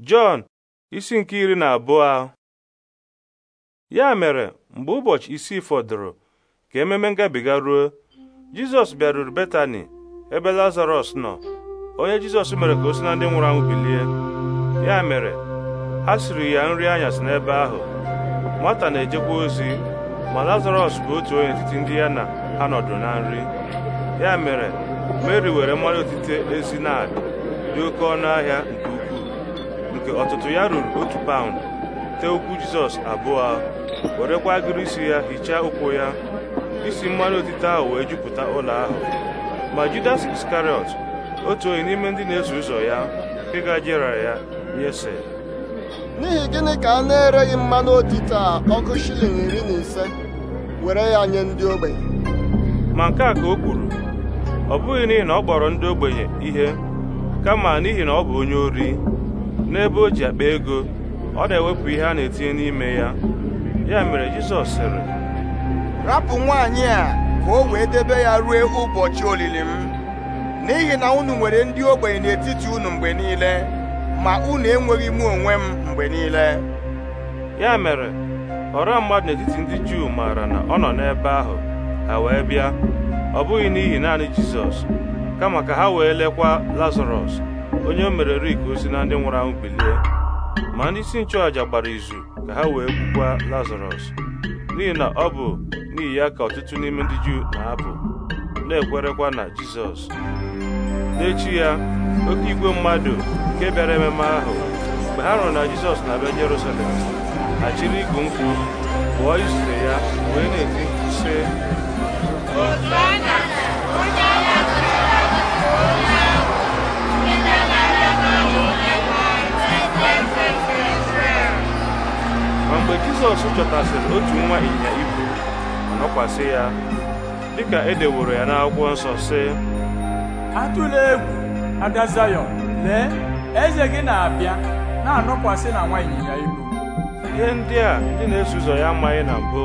Jọn isi nke iri na abụọ ya mere mgbe ụbọchị isii fọdụrụ ka ememe ngabiga ruo Jizọs bịaruru Betani ebe Lazarọs nọ onye Jizọs mere ka o si na ndị nwụrụ anwụ bilie ya mere ha siri ya nri anyasị n'ebe ahụ nwata na-ejekwa ozi ma Lazarọs bụ otu onye etiti ndị ya na ha nọdụ na nri ya mere Meri were mmanụ otite ezi na dị oke ọnụ ahịa nke nke ọtụtụ ya ruru otu paụnd tee ụkwụ jizọs abụọ werekwa agịrị isi ya hichaa ụkwụ ya isi mmanụ otite ahụ wee jupụta ụlọ ahụ ma judas iskariot otu onye n'ime ndị na-eso ụzọ ya nke gajere ya nyese n'ihi gịnị ka a na-ereghị mmanụ otite a ọkụ shilling iri na ise were ya nye ndị ogbenye ma nke a ka o kwuru ọ bụghị n'ihi na ọ kpọrọ ndị ogbenye ihe kama n'ihi na ọ bụ onye ori n'ebe o ji akpa ego ọ na-ewepụ ihe a na-etinye n'ime ya ya mere Jizọs sịrị rapụ nwaanyị a ka o wee debe ya ruo ụbọchị olili m n'ihi na unu nwere ndị ogbenye n'etiti unu mgbe niile ma unu enweghị m onwe m mgbe niile ya mere ọra mmadụ n'etiti ndị Juu maara na ọ nọ n'ebe ahụ ha wee bịa ọ bụghị n'ihi naanị Jizọs kama ka ha wee lekwa Lazarọs onye o mere rik osi na ndị nwụrụ anwụ bilie ma ndị isi nchụàjà gbara izu ka ha wee gbukwaa lazarọs n'ihi na ọ bụ n'ihi ya ka ọtụtụ n'ime ndị juu na-apụ na-ekwerekwa na jizọs n'echi ya oke igwe mmadụ nke bịara ememe ahụ mgbe ha hụrụ na jizọs na-abịa jerusalem ha chiri igu nkwu pụọ izute ya wee na-eti jizọs chọtasịrị otu nwa ịnyịnya ibu ma nọkwasị ya dịka edeworo ya n'akwụkwọ nsọ sị atụla egwu ada zayọn lee eze gị na-abịa na-anọkwasị na nwa ịnyịnya ibu ihe ndị a ndị na-eso ụzọ ya amaghị na mbụ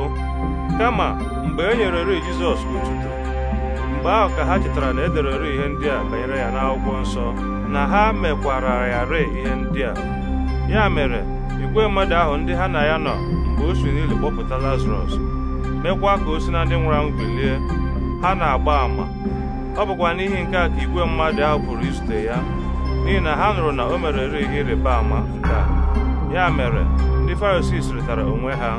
kama mgbe e nyere ri jizọs otuto mgbe ahụ ka ha chetara na ederere ihe ndị a banyere ya n'akwụkwọ nsọ na ha mekwara ya ree ihe ndị a ya mere igwe mmadụ ahụ ndị ha na ya nọ ka o si n'ili kpọpụta lazarọs mekwa ka o si na ndị nwụrụ anwụ bilie ha na-agba àmà ọ bụkwa n'ihi nke a ka igwe mmadụ ahụ pụrụ izute ya n'ihi na ha nụrụ na o merere ihe ịrịba ama nke a ya mere ndị farisii sịrịtara onwe ha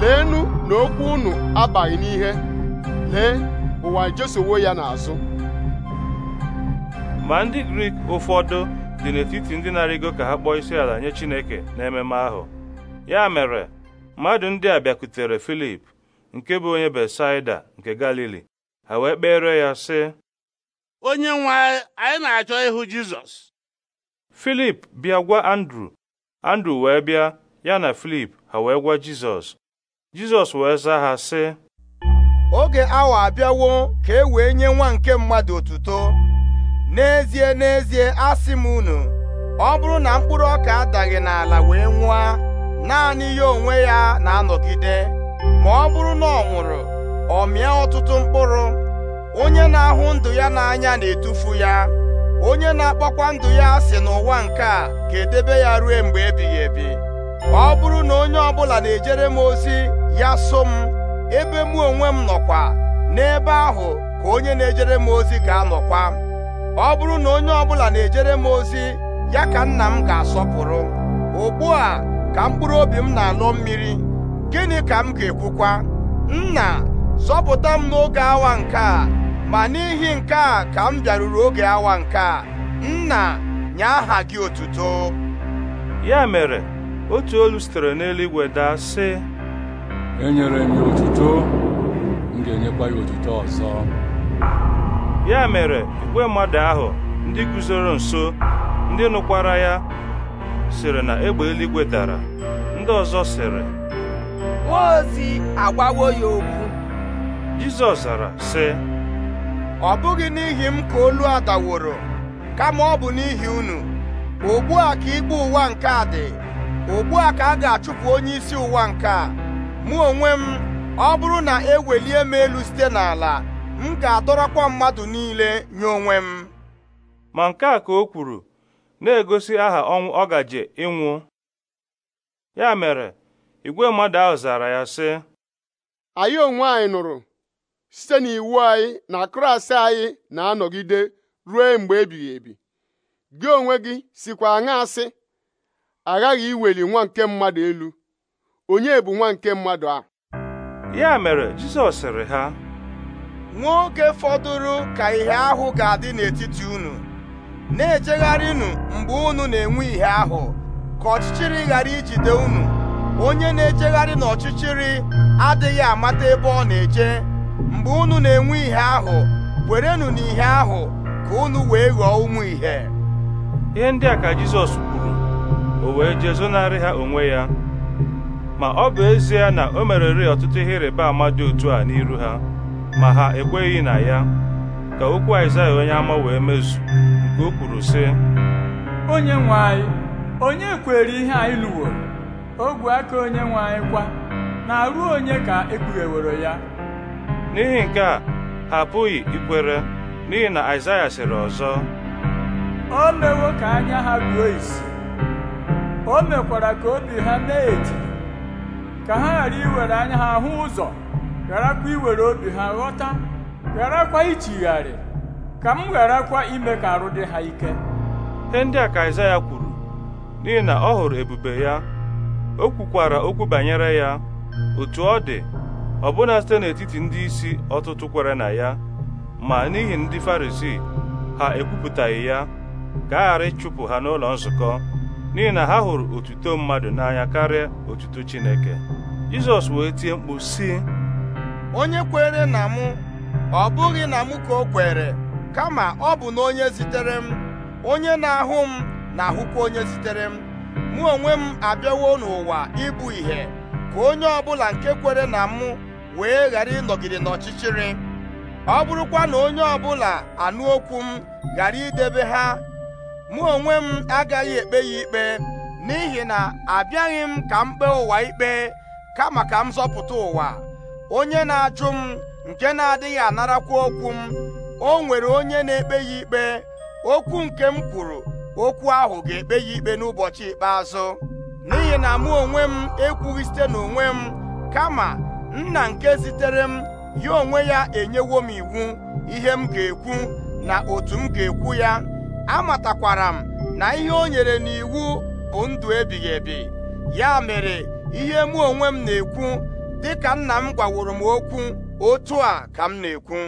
leenụ na okwu unu abaghị n'ihe lee ụwa ejesowo ya n'azụ ma ndị grik ụfọdụ dị n'etiti ndị na-arịgo ka ha kpọọ isi ala nye chineke ememe ahụ ya mere mmadụ ndị a bịakutere Filip nke bụ onye Besaida nke Galili ha wee kpere ya sị onye nwe anyị na-achọ ịhụ Jizọs Filip bịa gwa Andru Andru wee bịa ya na Filip ha wee gwa Jizọs Jizọs wee zaa ha sị oge awa abịawo ka e wee nye nwa nke mmadụ otuto n'ezie n'ezie asị m unu ọ bụrụ na mkpụrụ ọka adaghị n'ala wee nwụa naanị ya onwe ya na-anọgide ma ọ bụrụ na ọ nwụrụ ọ mịa ọtụtụ mkpụrụ onye na-ahụ ndụ ya n'anya na-etufu ya onye na-akpọkwa ndụ ya asị n'ụwa nke a ga-edebe ya rue mgbe ebighị ebi ọ bụrụ na onye ọbụla na-ejere m ozi ya so m ebe mụ onwe m nọkwa n'ebe ahụ ka onye na-ejere m ozi ga-anọkwa ọ bụrụ na onye ọbụla na-ejere m ozi ya ka nna m ga-asọpụrụ ugbu a ka mkpụrụ obi m na anụ mmiri gịnị ka m ga-ekwukwa nna zọpụta m n'oge awa nke a ma n'ihi nke a ka m bịaruru oge awa nke a nna nye aha gị otuto ya mere otu olu sitere n'eluigwe daa sị enyere m ya otuto m ga-enyekwa ya otuto ọzọ ya mere igwe mmadụ ahụ ndị guzoro nso ndị nụkwara ya sịrị na egbe eluigwe dara ndị ọzọ sịrị Mmụọ ozi agbawo ya okwu Jizọs zara sị ọ bụghị n'ihi m ka olu a daworo kama ọ bụ n'ihi unu ugbu a ka ikpe ụwa nke a dị ugbu a ka a ga-achụpụ onye isi ụwa nke a mụ onwe m ọ bụrụ na ewelie m elu site n'ala m ga-adọrọkwa mmadụ niile nye onwe m ma nke a ka o kwuru na-egosi aha ọnwụ ọ gaje ịnwụ ya mere igwe mmadụ ahụ zara ya sị anyị onwe anyị nụrụ site n'iwu anyị na Kraịst anyị na-anọgide ruo mgbe ebighị ebi gị onwe gị sikwa aṅa asị aghaghị iweli nwa nke mmadụ elu onye bụ nwa nke mmadụ a ya mere Jizọs sịrị ha Nwoke fọdụrụ ka ihe ahụ ga-adị n'etiti unu na-ejegharịnụ mgbe unu na-enwe ihe ahụ ka ọchịchịrị ghara ijide unu onye na-ejegharị n'ọchịchịrị adịghị amata ebe ọ na-eje mgbe unu na-enwe ihe ahụ werenụ na ihe ahụ ka unu wee ghọọ ụmụ ihe ihe ndị a ka Jizọs kwuru o wee jee zonarị ha onwe ya ma ọ bụ ezie na o mereri ọtụtụ ihe ịrịba ama dị otu a n'iru ha ma ha ekweghị na ya ka okwu Aịzaya onye ama wee mezu nke o kwuru sị onye nwe anyị onye kwere ihe anyị o ogwe aka onye nwe anyị kwa na-arụ onye ka ewere ya n'ihi nke a ha apụghị ikwere n'ihi na Aịzaya sịrị ọzọ o mewo ka anya ha buo isi o mekwara ka obi ha na-eti ka ha ghara iwere anya ha hụ ụzọ gharakwa iwere obi ha ghọta gharakwa ichigharị ka m gharakwa ime ka arụ dị ha ike ihe ndị a ka Aịzaya kwuru n'ihi na ọ hụrụ ebube ya o kwukwara okwu banyere ya otu ọ dị ọbụna site n'etiti ndị isi ọtụtụ kwere na ya ma n'ihi ndị Farisii ha ekwupụtaghị ya ka a ghara ịchụpụ ha n'ụlọ nzukọ n'ihi na ha hụrụ otuto mmadụ n'anya karịa otuto Chineke Jizọs wee tie mkpu sị onye kwere na mụ ọ bụghị na mụ ka o kwere kama ọ bụ na onye zitere m onye na-ahụ m na-ahụkwa onye zitere m mụ onwe m abịawo n'ụwa ịbụ ìhè ka onye ọbụla nke kwere na mụ wee ghara ịnọgide n'ọchịchịrị ọ bụrụkwa na onye ọbụla anụ okwu m ghara idebe ha mụ onwe m agaghị ekpe ya ikpe n'ihi na abịaghị m ka m kpee ụwa ikpe kama ka m zọpụta ụwa onye na-ajụ m nke na-adịghị anarakwa okwu m o nwere onye na-ekpe ya ikpe okwu nke m kwuru okwu ahụ ga-ekpe ya ikpe n'ụbọchị ikpeazụ n'ihi na mụ onwe m ekwughị site n'onwe m kama nna nke zitere m ya onwe ya enyewo m iwu ihe m ga-ekwu na otu m ga-ekwu ya amatakwara m na ihe o nyere n'iwu bụ ndụ ebighị ebi ya mere ihe mụ onwe m na-ekwu dịka nna m gwaworo m okwu otu a ka m na-ekwu